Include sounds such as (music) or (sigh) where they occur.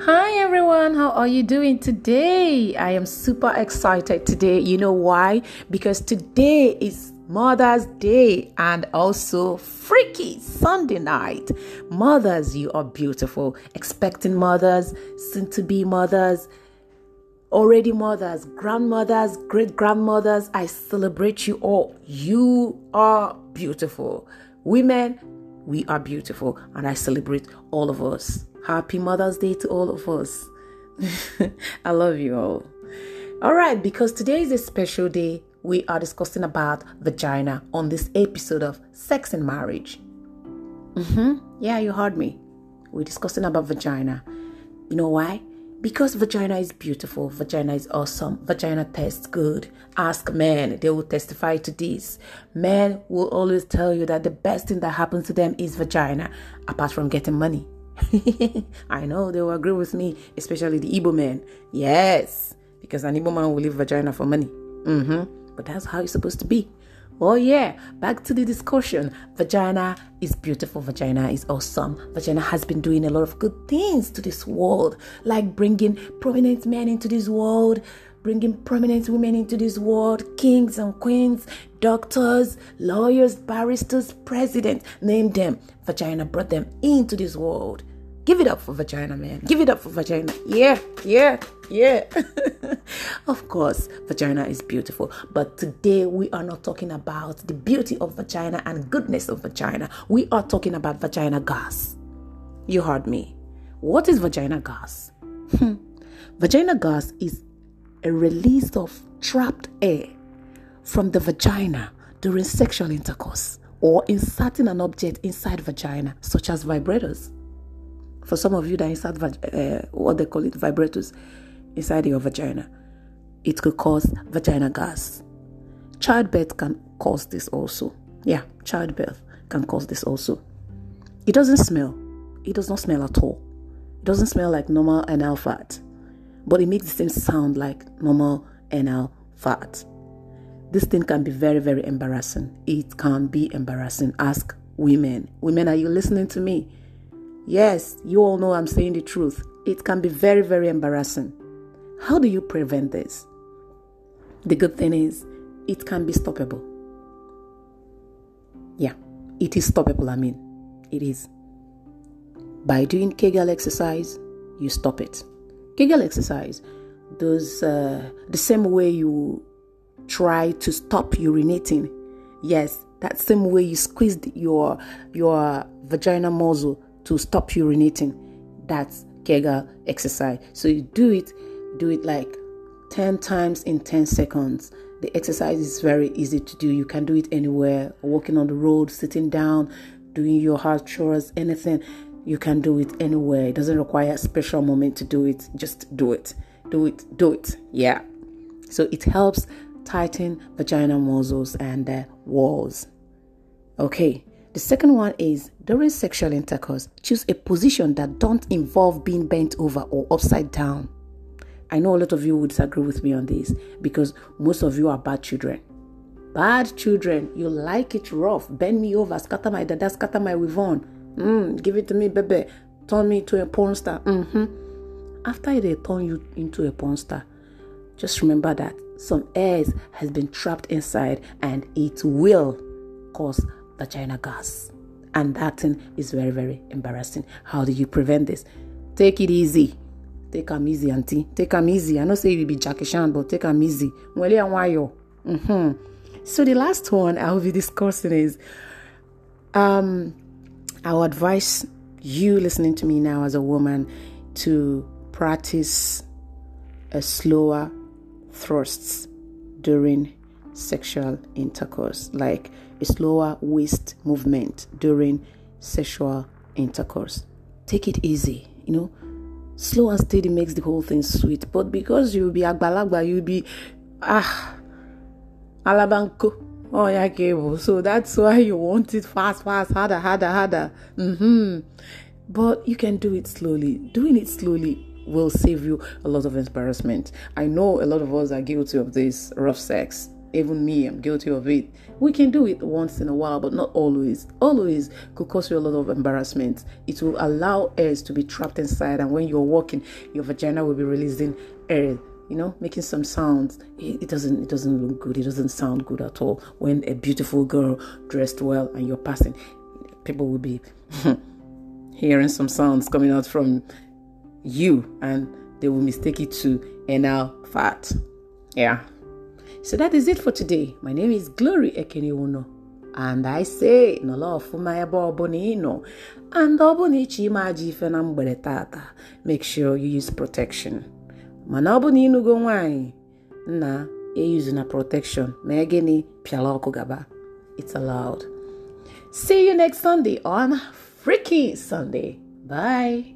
Hi everyone, how are you doing today? I am super excited today. You know why? Because today is Mother's Day and also Freaky Sunday night. Mothers, you are beautiful. Expecting mothers, soon to be mothers, already mothers, grandmothers, great grandmothers. I celebrate you all. You are beautiful. Women, we are beautiful, and I celebrate all of us. Happy Mother's Day to all of us. (laughs) I love you all. All right, because today is a special day, we are discussing about vagina on this episode of Sex and Marriage. Mm-hmm. Yeah, you heard me. We're discussing about vagina. You know why? Because vagina is beautiful, vagina is awesome, vagina tastes good. Ask men, they will testify to this. Men will always tell you that the best thing that happens to them is vagina, apart from getting money. (laughs) I know they will agree with me, especially the Igbo men. Yes, because an Igbo man will leave vagina for money. Mm-hmm. But that's how it's supposed to be. Oh yeah, back to the discussion. Vagina is beautiful. Vagina is awesome. Vagina has been doing a lot of good things to this world, like bringing prominent men into this world, bringing prominent women into this world kings and queens, doctors, lawyers, barristers, presidents name them. Vagina brought them into this world. Give it up for vagina, man. Give it up for vagina. Yeah, yeah, yeah. (laughs) of course, vagina is beautiful. But today we are not talking about the beauty of vagina and goodness of vagina. We are talking about vagina gas. You heard me. What is vagina gas? Hmm. vagina gas is a release of trapped air from the vagina during sexual intercourse or inserting an object inside vagina, such as vibrators. For some of you that insert uh, what they call it vibrators inside your vagina, it could cause vagina gas. Childbirth can cause this also. Yeah, childbirth can cause this also. It doesn't smell. It does not smell at all. It doesn't smell like normal anal fat. but it makes the same sound like normal NL fat. This thing can be very, very embarrassing. It can be embarrassing. Ask women. Women, are you listening to me? Yes, you all know I'm saying the truth. It can be very, very embarrassing. How do you prevent this? The good thing is, it can be stoppable. Yeah, it is stoppable, I mean, it is. By doing Kegel exercise, you stop it. Kegel exercise, those uh, the same way you try to stop urinating. Yes, that same way you squeezed your your vaginal muscle to stop urinating. That's Kegel exercise. So you do it, do it like 10 times in 10 seconds. The exercise is very easy to do. You can do it anywhere, walking on the road, sitting down, doing your house chores, anything. You can do it anywhere. It doesn't require a special moment to do it. Just do it. Do it. Do it. Yeah. So it helps tighten vagina muscles and walls. Okay. The second one is during sexual intercourse, choose a position that don't involve being bent over or upside down. I know a lot of you would disagree with me on this because most of you are bad children. Bad children, you like it rough. Bend me over, scatter my dada, scatter my weave on. Mm, give it to me, baby. Turn me into a porn star. Mm-hmm. After they turn you into a porn star, just remember that some air has been trapped inside and it will cause the China gas. And that thing is very, very embarrassing. How do you prevent this? Take it easy. Take am easy, auntie. Take am easy. I know say you be Jackie Chan, but take am easy. Mwele Awanyo Mm-hmm. So the last one I will be (laughs) discussing is um, I would advise you listening to me now as a woman to practice a slower thrusts during sexual intercourse, like a slower waist movement during sexual intercourse. Take it easy, you know. Slow and steady makes the whole thing sweet, but because you'll be agbalagba, you'll be ah alabanko oya oh, gable so that's why you want it fast fast harder harder harder mm-hmm. but you can do it slowly doing it slowly will save you a lot of embarrassment i know a lot of us are guilty of this rough sex even me, I'm guilty of it. We can do it once in a while, but not always. Always could cause you a lot of embarrassment. It will allow airs to be trapped inside, and when you're walking, your vagina will be releasing air you know, making some sounds. It, it, doesn't it doesn't look good. It doesn't sound good at all. When a beautiful girl dressed well and you're passing, people will be (laughs) hearing some sounds coming out from you, and they will mistake it to anal fat. Yeah. So that is it for today. My name is Glory Ekeniwono. And I say nọla ọfụma ebe ọbụla ị and ọbụna ịchọ ime ife na tata make sure you use protection mana ọ bụ na ịnugo nwaanyị na eyuzu na protection mee gịnị pịala ọkụ gaba it's allowed see you next sunday on freaking sunday bye